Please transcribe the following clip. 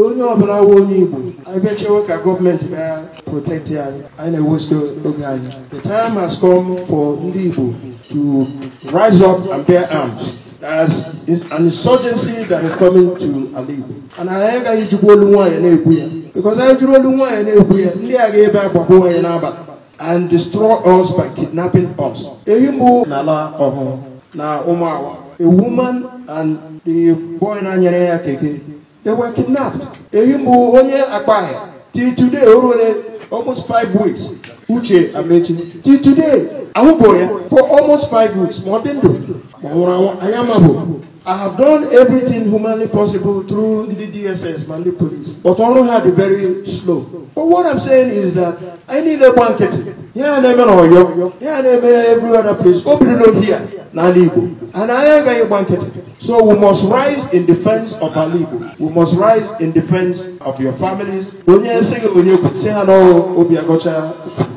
onye ọbụla nwe onye Igbo anyị bịa ka gọọmenti bịa protekti anyị anyị na-ewestu oge anyị the time has come for ndị Igbo to rise up and bear arms as an insurgency that is coming to ala Igbo and anyị agaghị jikwa olu nwaanyị na-ekwu ya because anyị jụrụ olu nwaanyị na-ekwu ya ndị a ga-ebe agbakwa nwaanyị n'abalị and destroy us by kidnapping us ehi mbụ n'ala ọhụrụ na awa, a woman and the boy na-anyere ya keke They were kidnapped. Ehimbu onye akpaghị. Till today, o ruole almost five weeks. Uche Amechi. Till today, ahụbụ ya for almost five weeks ma ọ dị ndụ ma ọ nwụrụ anwụ anyị I have done everything humanly possible through the DSS ma police but ọrụ ha dị very slow. But what I'm saying is that anyị niile gba nkịtị ihe a na-eme n'Ọyọ ihe a na-eme every other place o no here n'ala Igbo and anyị agaghị gba nkịtị so we must rise in defense of ala Igbo we must rise in defense of your families onye sị gị onye kwute ha n'ọrụ obi agọcha